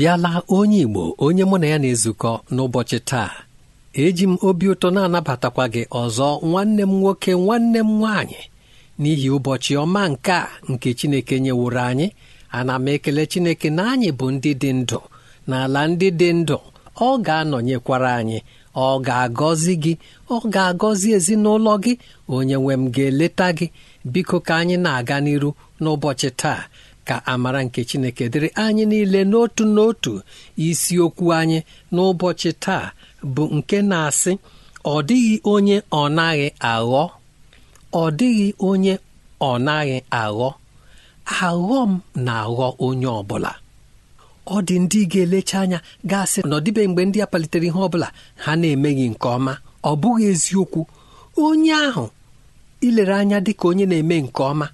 abịala onye Igbo onye mụ na ya na-ezukọ n'ụbọchị taa eji m obi ụtọ na-anabatakwa gị ọzọ nwanne m nwoke nwanne m nwaanyị n'ihi ụbọchị ọma nke a nke Chineke nyeworo anyị ana m ekele Chineke na anyị bụ ndị dị ndụ na ala ndị dị ndụ ọ ga-anọnyekwara anyị ọ ga-agọzi gị ọ ga-agọzi ezinụlọ gị onye nwe m ga-eleta gị biko ka anyị na-aga n'iru n'ụbọchị taa ka amara nke chineke dịrị anyị niile n'otu n'otu isiokwu anyị n'ụbọchị taa bụ nke na-asị ọ dịghị onye ọ naghị aghọ ọ dịghị onye ọ naghị aghọ aghọ m na-aghọ onye ọ bụla ọ dị ndị ga-elecha anya gasị na ọdịbe mgbe ndị a palitere ihe bụla ha na-emeghị nke ọma ọ bụghị eziokwu onye ahụ ilere anya dị ka onye na-eme nke ọma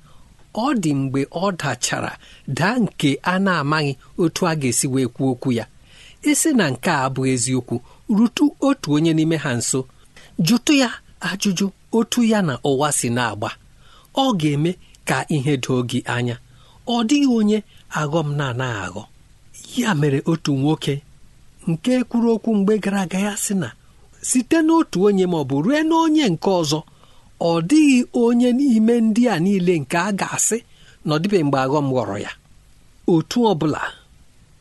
ọ dị mgbe ọ dachara daa nke a na-amaghị otu a ga-esi wee kwuo okwu ya esi na nke a bụ eziokwu rutu otu onye n'ime ha nso jụtụ ya ajụjụ otu ya na ụwa si na-agba ọ ga-eme ka ihe doo gị anya ọ dịghị onye m na-anaghị aghọ ya mere otu nwoke nke kwuru okwu mgbe gara aga ya sị na site n'otu onye ma ọ bụ rue n'onye nke ọzọ ọ dịghị onye n'ime ndị a niile nke a ga-asị na ọ mgbe aghọm ghọrọ ya otu ọ bụla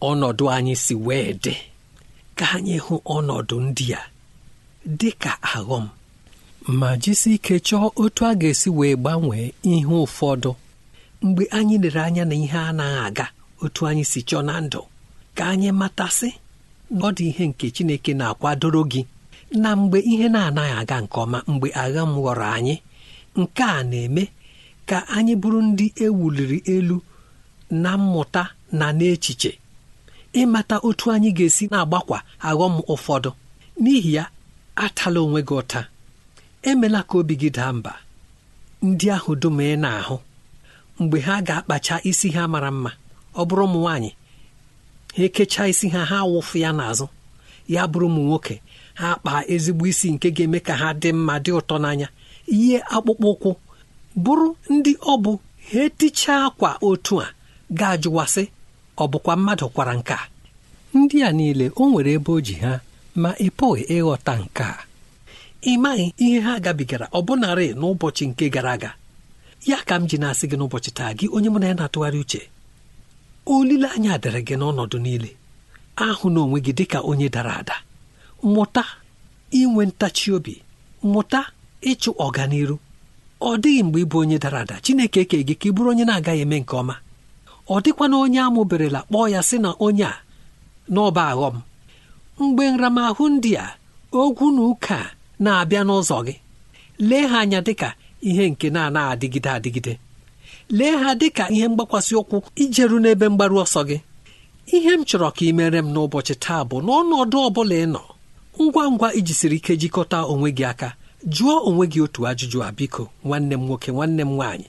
ọnọdụ anyị si wee dị ka anyị hụ ọnọdụ ndị a dị ka aghọm ma jisi ike chọọ otu a ga-esi wee gbanwee ihe ụfọdụ mgbe anyị lere anya na ihe anaghị aga otu anyị si chọọ na ndụ ka anyị matasị ọ dị ihe nke Chineke na-akwadoro gị na mgbe ihe na-anaghị aga nke ọma mgbe agha m ghọrọ anyị nke a na-eme ka anyị bụrụ ndị ewuliri elu na mmụta na n'echiche ịmata otu anyị ga-esi na-agbakwa aghọm ụfọdụ n'ihi ya atala onwe gị ụta emela ka obi gị daa mba ndị ahụ dum ị na-ahụ mgbe ha ga-akpacha isi ha mara mma ọ bụrụ ụmụ nwaanyị ha ekechaa isi ha ha wụfụ ya n'azụ ya bụrụ ụmụ nwoke ha kpaa ezigbo isi nke ga-eme ka ha dị mma dị ụtọ n'anya ihe akpụkpọ ụkwụ bụrụ ndị ọ bụ ha etichaa akwa otu a ga-ajụwasị ọ bụkwa mmadụ kwara nka ndị a niile o nwere ebe o ji ha ma ị pụghị ịghọta nke a ị maghị ihe ha gabigara bụnarị n'ụbọchị nke gara aga ya ka m ji na-asị gị n'ụbọchị taa gị onye mụ na ya na-atụgharị uche olileanya dịrị gị n'ọnọdụ niile ahụ na onwe gị dịka onye dara ada mụta inwe ntachi obi mụta ịchụ ọganiru ọ dịghị mgbe ịbụ onye dara ada Chineke eke gị ka ị bụrụ onye na-agaghị eme nke ọma ọ dịkwana onye amụberela kpọọ ya sị na onye a n'ọba aghọm mgbe nramahụ ndị a ogwu na ụka na-abịa n'ụzọ gị lee ha anya dịka ihe nke na-anaghị adịgide adịgide lee ha dịka ihe mgbakwasị ụkwụ ijeru n'ebe mgbaru ọsọ gị ihe m chọrọ ka ị mere m n'ụbọchị taa bụ n'ọnọdụ ọ bụla ị nọ ngwa ngwa iji siri ike jikọta onwe gị aka jụọ onwe gị otu ajụjụ a biko nwanne m nwoke nwanne m nwaanyị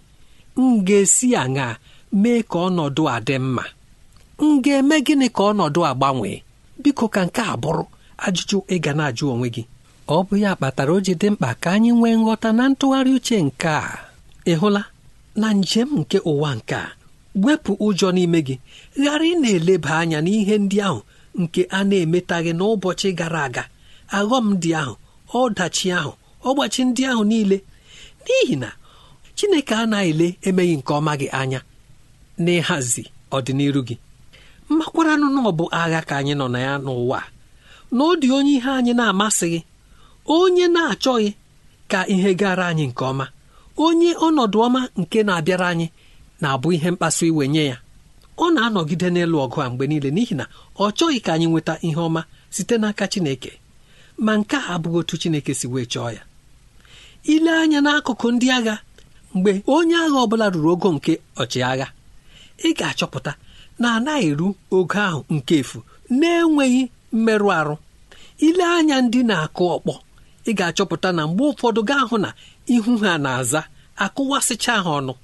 m ga-esi aṅa mee ka ọnọdụ a dị mma m ga-eme gịnị ka ọnọdụ a gbanwee biko ka nke a bụrụ ajụjụ ga na-ajụ onwe gị ọ bụ ya kpatara o ji dị mkpa ka anyị nwee nghọta na ntụgharị uche nke a ị hụla na njem nke ụwa nke a wepụ ụjọ n'ime gị ghara ị na-eleba anya n'ihe ndị ahụ nke a na-emetaghị n'ụbọchị gara aga aghọm dị ahụ ọdachi ahụ ọgbachi ndị ahụ niile n'ihi na chineke anaghị ele emeghị nke ọma gị anya n'ịhazi ọdịnihu gị makwaranụ na ọ bụ agha ka anyị nọ na ya n'ụwa na ọ dị onye ihe anyị na-amasịghị onye na-achọghị ka ihe gara anyị nke ọma onye ọnọdụ ọma nke na-abịara anyị na-abụ ihe mkpasu iwe nye ya ọ na-anọgide n'elu ọgụ a mgbe niile n'ihi na ọ chọghị ka anyị nweta ihe ọma site n'aka Chineke ma nke a abụghị otu Chineke si wee chọọ ya ile anya n'akụkụ ndị agha mgbe onye agha ọbụla ruru ogo nke ọchịagha ị ga-achọpụta na anaghị eru ogo ahụ nke efu na-enweghị mmerụ arụ ile anya ndị na-akụ ọkpọ ị ga-achọpụta na mgbe ụfọdụ gaa hụ na ihu ha na-aza akụwasịcha ha ọnụ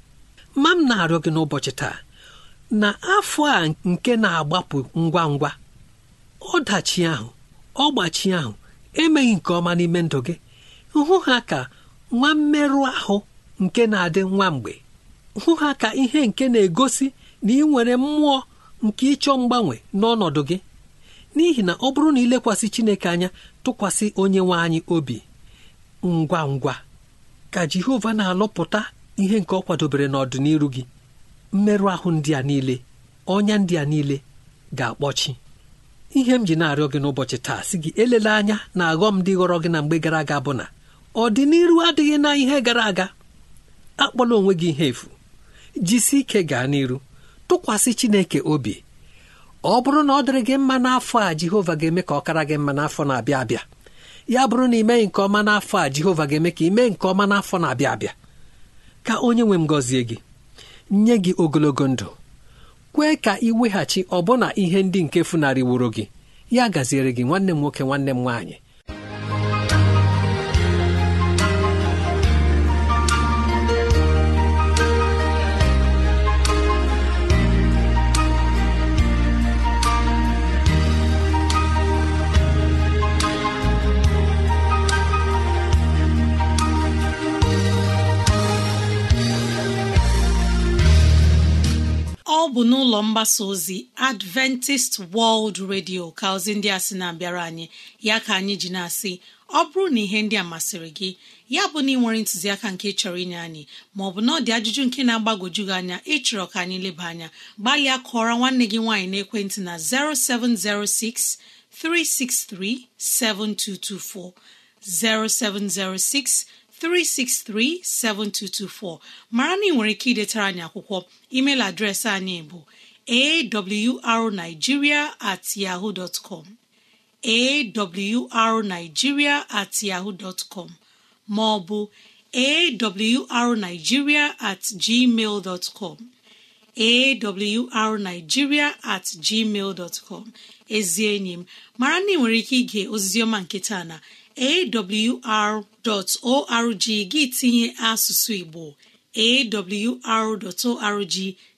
ma m na-arịọ gị n'ụbọchị taa na afọ a nke na-agbapụ ngwa ngwa ọdachi ahụ ọgbachi ahụ emeghị nke ọma n'ime ndụ gị hụ ha ka nwa mmerụ ahụ nke na-adị nwa mgbe hụ ha ka ihe nke na-egosi na ị nwere mmụọ nke ịchọ mgbanwe n'ọnọdụ gị n'ihi na ọ bụrụ na ilekwasị Chineke anya tụkwasị onye nwe anyị obi ngwa ngwa ka Jehova na-alụpụta ihe nke ọ kwadobere n'ọdịniru gị mmerụ ahụ ndị a niile ọnya ndị a niile ga-akpọchi ihe m ji na-arịọ gị n'ụbọchị taa si gị elele anya na aghọ m dị ghọrọ gị na mgbe gara aga bụ na ọdịnihu adịghị na ihe gara aga akpọla onwe gị ihe efu jisi ike gaa n'iru tụkwasị Chineke obi ọ bụrụ na ọ dịrị gị mma n'afọ a Jehova ga-eme ka ọ kara gị mma n'afọ na-abịa abịa ya bụrụ na imeghị nke ọma n'afọ a Jehova ga-eme ka imee nke ọma n'afọ na-abịa abịa ka onye nwe m gọzie gị nye gị ogologo ndụ kwee ka ị weghachi ọbụna ihe ndị nke wuru gị ya gaziere gị nwanne m nwoke nwanne m nwaanyị bụ n'ụlọ mgbasa ozi adventist world radio ka ozi ndị a sị na-abịara anyị ya ka anyị ji na-asị ọ bụrụ na ihe ndị a masịrị gị ya bụ na ị nwere ntụziaka nke chọrọ inye anyị maọbụ na ọ dị ajụjụ nke na-agbagwoju gị anya ịchọrọ ka anyị leba anya gbalịa kụọra nwanne gị nwaanyị na 0706 363 7224 0706 363-7224 mara na ị nwere ike idetara anyị akwụkwọ email adreesị anyị bụ awrnigeria at com at com ma ọ bụ awrnigeria at gmail at gmail com ezi enyi m mara na ị nwere ike ige ozizioma nke taa na awr.org gị tinye asụsụ Igbo awr.org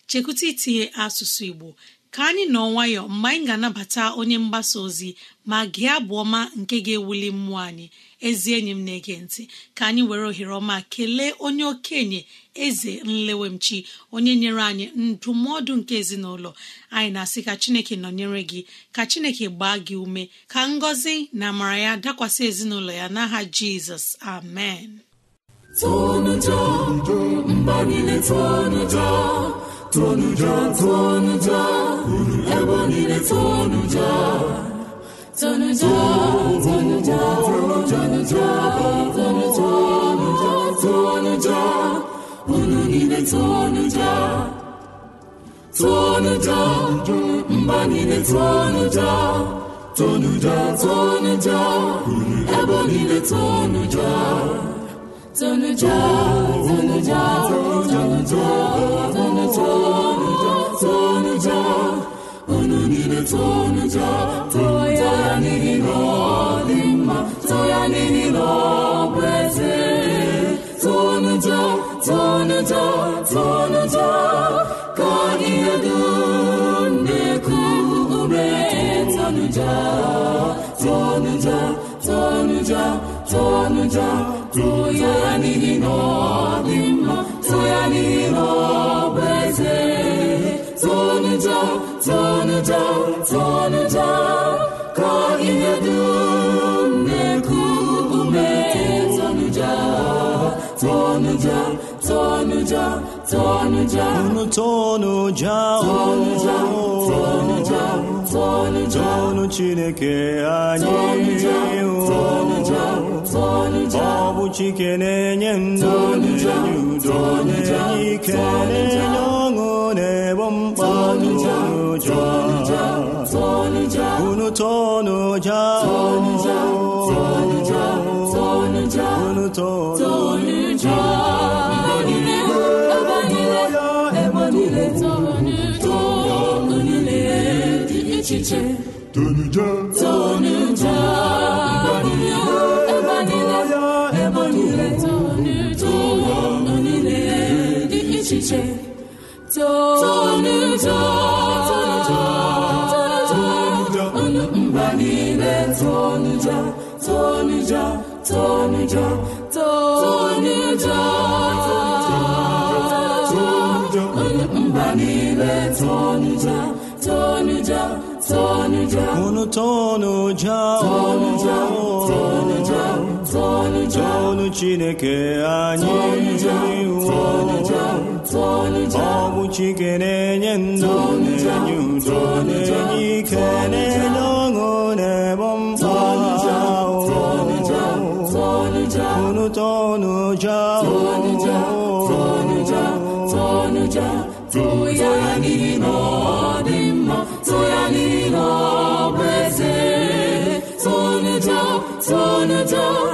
chekwụta itinye asụsụ Igbo ka anyị nọ nwayọ mgbe anyị ga-anabata onye mgbasa ozi ma gị abụ ọma nke ga-ewuli mmụọ anyị ezi enyi m na-ege ntị ka anyị were ohere ọma kelee onye okenye eze nlewemchi onye nyere anyị ndụmọdụ nke ezinụlọ anyị na-asị ka chineke nọnyere gị ka chineke gbaa gị ume ka ngọzi na amara ya dakwasị ezinụlọ ya n'aha jizọs amen niile tụọnụ ja tụọnụ mba niile tụọnụ ja tụọnụ ja niile tụọnụ ja tụọnụ unu niile tụọnụ ja ya n'ihi na ọ dị mma tụọ ya n'ihi na ọ bụ eze Tonuja, tonuja, ka ihe dụnekụ ume tụnụja Tonuja, tonuja, tonuja, tonuja, ya n'ihi na ọ ya n'ihi na Tonuja, tonuja, tonuja, tụnụja tụnụja ka ihe unu tonu ja tonu chineke anyị ọ bụ chike na-enye ndụ na-enye udo na-enye ike na ebo iche tonudo tonudo ebe niile ebe niile ụwa niile Kunu tonu jawo tonu Chineke anyị ọ bụ Chike na-enye ndụ na-enye udo na-enye ike na-enye ọṅụ na-ebo mkpa ahụ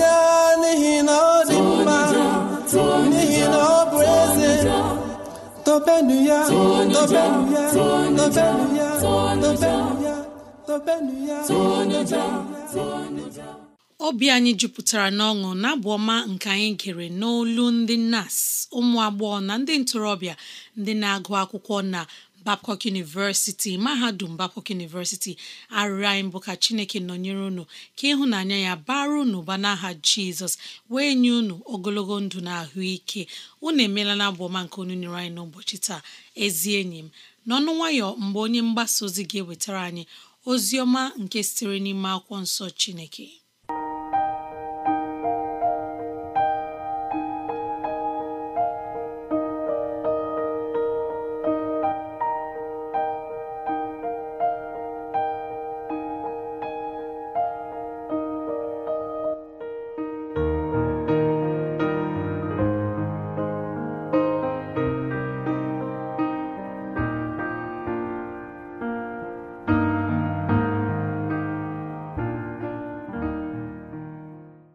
ya n'ihi na ọ dị mma n'ihi na ọ bụ eze ya ya obi anyị jupụtara n'ọṅụ n'abụ ọma nke anyị gere n'olu ndị nas ụmụ agbọghọ na ndị ntorobịa ndị na-agụ akwụkwọ na Babcock University mahadum Babcock University arịrịọ anyị bụ ka Chineke nọnyere unu ka ịhụnanya ya bara unu ụba n'aha Jizọs wee nye unu ogologo ndụ na ahụike unu emeela na abụ ọma nke onu nyere anyị n'ụbọchị taa ezi enyi m n'ọnụ nwayọ mgbe onye mgbasa ozi ga-ewetara anyị ozi ọma nke sitere n'ime akwụkwọ nsọ Chineke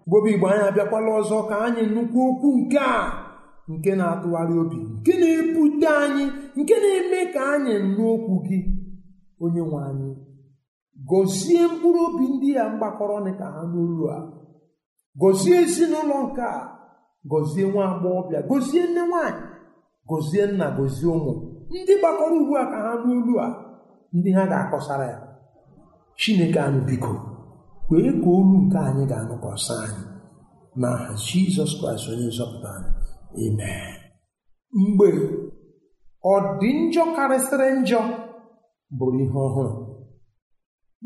mgbobe igbo anyị abịakwala ọzọ ka anyị nnukwu okwu nke a nke na-atụgharị obi nke na-ebute anyị nke na-eme ka anyị n'okwu okwu gị onye nwe anyị gọzie mkpụrụ obi ndị ya mgbakọrọ ka ha n'olu a gọzie ezinụlọ nke a gọzie nwa agbọghọbịa gọzie nne nwaanyị gọzie nna gọzie ụmụ ndị gbakọrọ ugbu a ka ha n'olu a ndị ha ga-akọsara ya chineke anụ biko kwee ka olu nke anyị ga-anụkwasị anyị n'aha jizọs kraịst onye nzọpụta anyị amen mgbe ọ dị njọ karịsịrị njọ bụrụ ihe ọhụrụ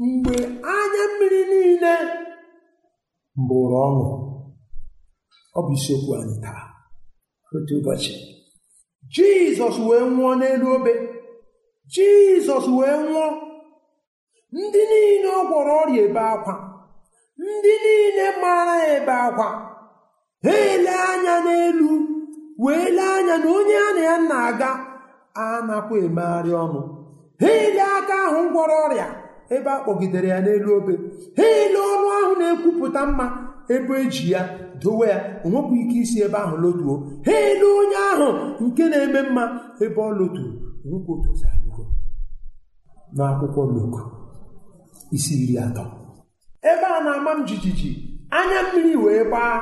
mgbe anya mmiri niile bụrụ ọṅụ ọ bụ isiokwu anyị taa otu ụbọchị jizọs wee nwụọ n'elu obe jizọs wee nwụọ ndị niile ọ gwọrọ ọrịa ebe akwa ndị niile mara ebe akwa ha ele anya n'elu wee lee anya na onye a na ya na-aga anakwa emegharị ọnụ ha ele aka ahụ gwọrọ ọrịa ebe a kpọgidere ya n'elu obe ha ele ọnụ ahụ na-ekwupụta mma ebe eji ya dowe ya onwekwa ike isi ebe ahụ lotuo ha ele onye ahụ nke na-eme mma ebe ọ loturu nwoke otu n'akwụkwọ loko isi iri atọ ebe a na-ama m jijiji anya mmiri wee gbaa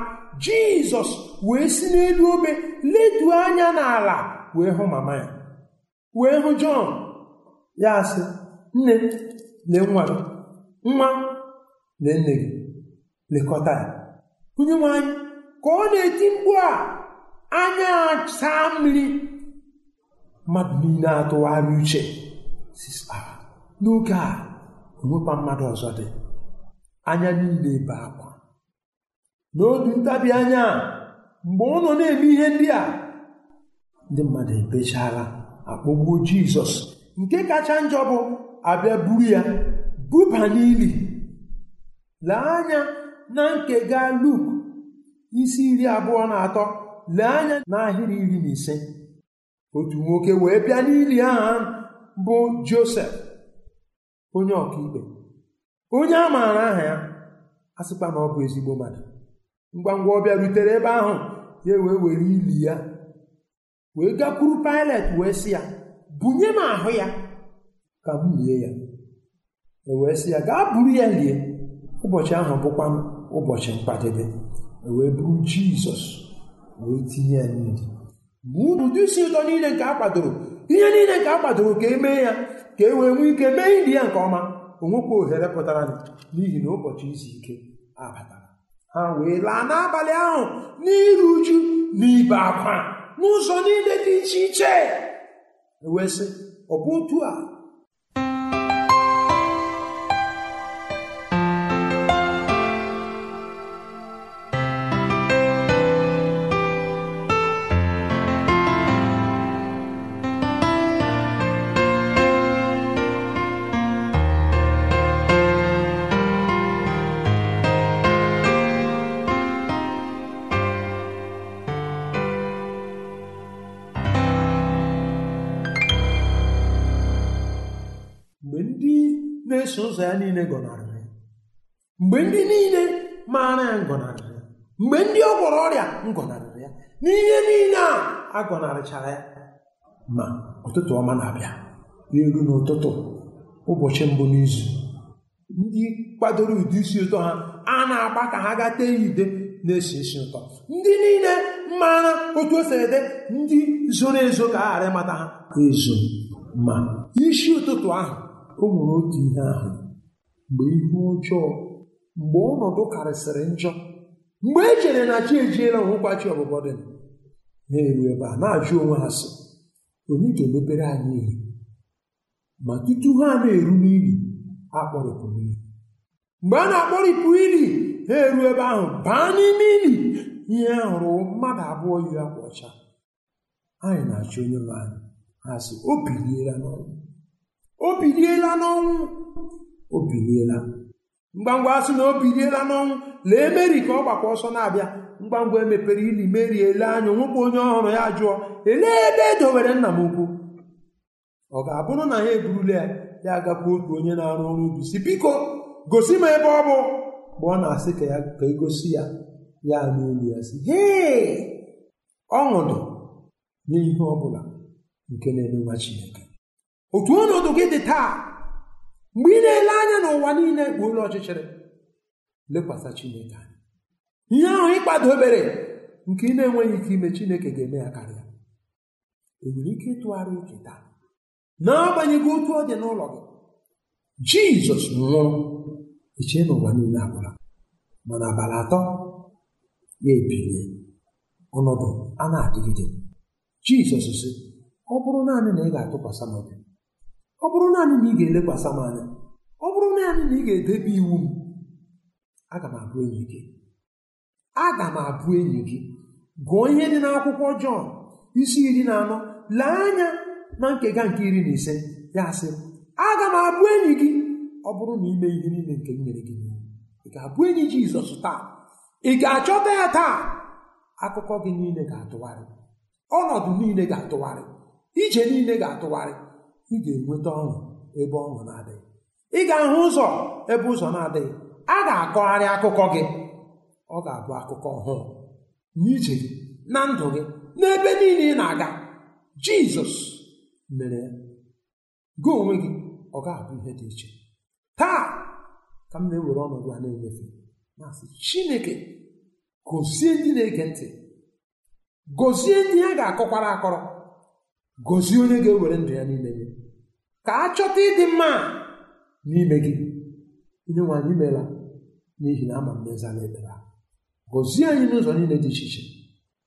jizọs wee si n'elu obe leduo anya n'ala wee hụ mama ya wee hụ jọn ya sị nne lee nwa gị nwa lee nne gị lekọta ya onye nwanyị ka ọ na-eti mkpu a anya saa mmiri mmadụ niile atụgharị uche n'oge a onwekwa mmadụ ọzọ dị anya niile ebe akwa n'obi ntabi anya mgbe ụlọ na-eme ihe ndị a ndị mmadụ ebechaala akpọgbuo jizọs nke kacha njọ bụ abịa buru ya buba n'ili lee anya na nke gaa luk isi iri abụọ na atọ lee anya n'ahịrị iri na ise otu nwoke wee bịa n'ili aha bụ josef onye ọkaikpe onye a maara aha ya asịkwa na ọ bụ ezigbo mmadụ ngwa ngwa ọ bịarutere ebe ahụ ya wee were ili ya wee gakwuru Pilet wee sị ya bunye m ahụ ya ka m lie ya e wee sị ya gaa buru ya lie ụbọchị ahụ bụkwa ụbọchị mkpadebe e wee buru Jizọs wee tinye ya niile ma ụdị isi ụtọ niile nke a kwadoro ihe niile nke a kwadoro ka e mee ya ka e wee nwee ike mee ili ya nke ọma onwekwa ohere pụtara n'ihi na ụbọchị izu ike abatara ha wee laa n'abalị ahụ n'iru uju na ibe akwa n'ụzọ niile dị iche iche wee sị ọ bụ otu a na-eso ụzọ ya niile gọnarịrị ya mgbe ndị niile maara ya ngọnarịrị ya mgbe ndị ọ gwọrọ ọrịa ngọnarịrị ya n'ihe niile a agọnarịchara gọnarịchara ya ma ụtụtụ ọma na-abịa n'elu n'ụtụtụ ụbọchị mbụ n'izu ndị kwadoro ụdị isi ụtọ ha a na-agba ka ha gaa tee ide na-esi isi ụtọ ndị niile mara otu o ede ndị zoro ezo ka a ghara ịmata ha ezo ma isi ụtụtụ ahụ o nwere otu ihe ahụ mgbe ihu ọjọọ mgbe ọnọdụ karịsịrị njọ mgbe e chere na chi ejiela onwekwa chi ọbụbọ dị na eru ebe a na-ajụ onwe ha sị onye ga-emepere anyị ihe ma tutu ha na-eru n'ili ha kpọrịpụrụ ili mgbe a na-akpọrịpụ ili ha eru ebe ahụ baa n'ime ili ihe hụrụ mmadụ abụọ yi akwa ọcha anyị na-achọ onye nwe anyị ha sị o biliela n'ọrụ. o biliela n'ọnwụ o biliela ngwangwa asị na o biliela n'ọnwụ lee meri ka ọ gbakwa ọsọ na-abịa ngwangwa emepere ili meri ele anya nwekwa onye ọhụrụ ya jụọ elee ebe e nna m ukwu ọ ga-abụrụ na ya eburula ya ya agakwa otu onye na-arụ ọrụ ubi si biko gosi m ebe ọ bụ mgbe ọ na-asị ka ya ka egosi ya ya n'olu ya si hee ọṅụdụ n'ihe ọ bụla nke na-eme nwa Chineke otu ọnọdụ gị dị taa mgbe ị na-ele anya n'ụwa niile bụ ụlọ ọchịchịrị lekwasị Chineke anya ihe ahụ ịkpadobere nke ị na-enweghị ike ime Chineke ga-eme ya karịa enwere ike ịtụgharị uche taa n'agbanyeghị otu ọ dị n'ụlọ gị Jizọs nwụrụ eche n'ụwa niile agwụla mana abalị atọ ya ebilie ọnọdụ a na-adịgide Jizọs sị ọ bụrụ naanị na ị ga-atụkwasị m ọ bụrụ naanị na ị ga-elekwasị m anya ọ bụrụ naanị na ị ga-edebe iwu m aga m abụ enyi gị aga m abụ enyi gị gụọ ihe dị n'akwụkwọ Jọn isi iri na anọ lee anya na nkega nke iri na ise ya sị aga m abụ enyi gị ọ bụrụ na ime ihe niile nke m nyere gị ị ga-abụ enyi Jizọs taa ị ga-achọta ya taa akụkọ gị niile ga-atụgharị ọnọdụ niile ga-atụgharị ije niile ga-atụgharị ị ga-enweta ọṅụ ebe ọṅụ na-adịghị ị ga-ahụ ụzọ ebe ụzọ na-adịghị a ga-akọgharị akụkọ gị ọ ga-abụ akụkọ ọhụụ n'ije gị na ndụ gị n'ebe niile ị na-aga jizọs mere ya gị onwe gị ọ ga-abụ ihe dị iche taa ka m na-ewere ọnọdụ a na-enyefe na chineke gozie ndị na-ege ntị gozie ndị ha ga-akọkwara akọrọ gozie onye ga-ewere ndụ ya n'ime gị ka a chọta ịdị mma n'ime gị onye nwe anyị n'ihi na ama mmezala ekpere gọzie anyị n'ụzọ niile dị iche iche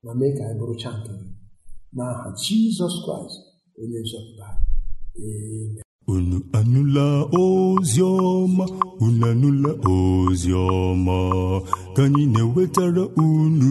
ma mee ka anyị bụrụcha nke gị n'aha jizọs kraịst onye nzọpụta unu anụla ozi ọma unu anụla ozi ọma ka anyị na-ewetara unu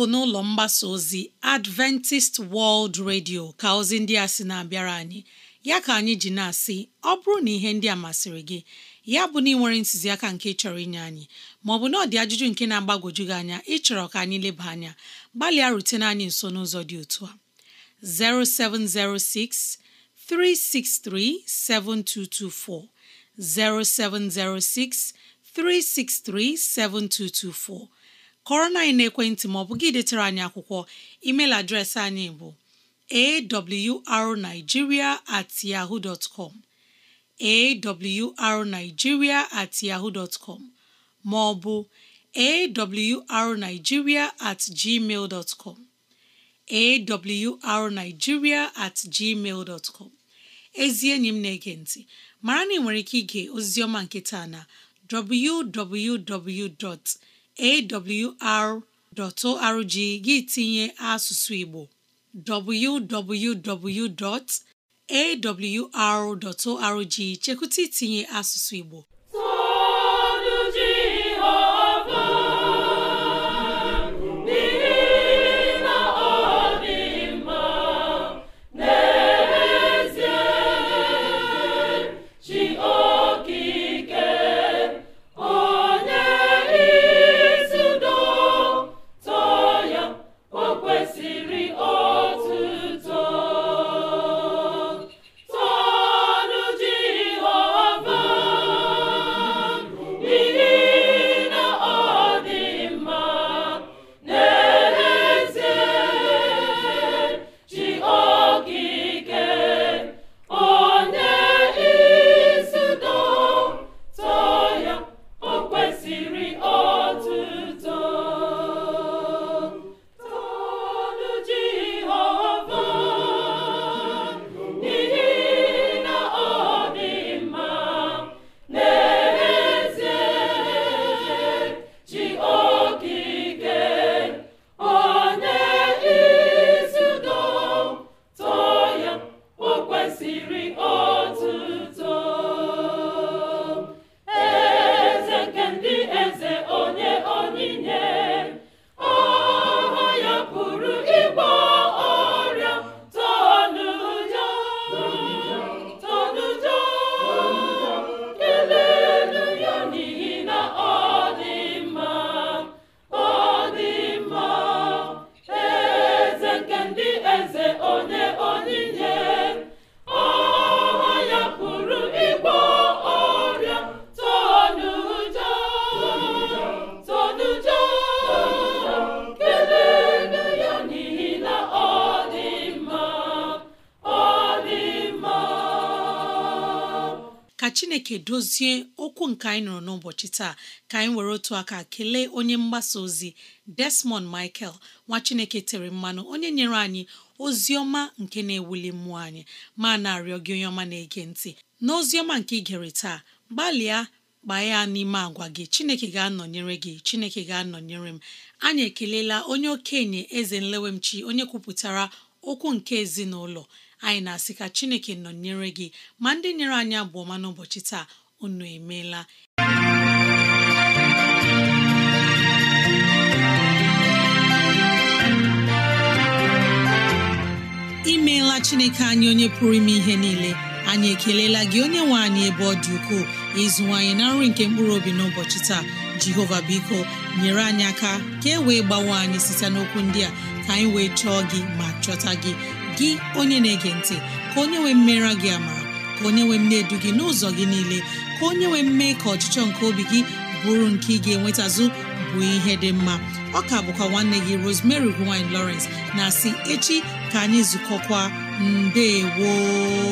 bụ n'ụlọ mgbasa ozi Adventist World Radio ka ozi ndị a sị na-abịara anyị ya ka anyị ji na-asị ọ bụrụ na ihe ndị a masịrị gị ya bụ na ị nwere ntụziaka nke chọrọ inye anyị maọbụ na ọ dị ajụjụ nke na-agbagwoju gị anya ịchọrọ ka anyị leba anya gbalịa rutene anyị nso n'ụzọ dị otu a 0706 363 7224 0706 363 7224 kọrọ na anyị na-ekwentị ma ọ bụ gị detare anyị akwụkwọ email adreesị anyị bụ awrnigeria at at com ma ọ bụ at gmail com at gmail com ezi enyi m na-ege ntị mara na ị nwere ike ige ozizioma nketa na www. awr.org gị tinye asụsụ Igbo www.awr.org chekwụta itinye asụsụ Igbo chineke dozie okwu nke anyị nụrụ n'ụbọchị taa ka anyị were otu aka kelee onye mgbasa ozi Desmond Michael nwa chineke tere mmanụ onye nyere anyị ozi ọma nke na-ewuli mmụọ anyị ma na-arịọ gị onye ọma na-ege ntị na ozi ọma nke ị gere taa gbalịa gbaa ya n'ime agwa gị chineke ga-anọnyere gị chineke ga-anọnyere m anyị ekelela onye okenye eze nlewemchi onye kwupụtara okwu nke ezinụlọ anyị na-asị ka chineke nọ nyere gị ma ndị nyere anyị ọma n'ụbọchị taa unu emeela imeela chineke anyị onye pụrụ ime ihe niile anyị ekelela gị onye nwe anyị ebe ọ dị ukwuu ukoo ịzụwanyị na nri nke mkpụrụ obi n'ụbọchị taa jehova biko nyere anyị aka ka e wee gbawe anyị site n'okwu ndị a ka anyị wee chọọ gị ma chọta gị gị onye na-ege ntị ka onye nwee mmera gị ama ka onye nwee mne edu gị n'ụzọ gị niile ka onye nwee mme ka ọchịchọ nke obi gị bụrụ nke ị ga-enwetazụ bụ ihe dị mma ọka bụkwa nwanne gị Rosemary gine Lawrence na si echi ka anyị zukọkwa mbe gboo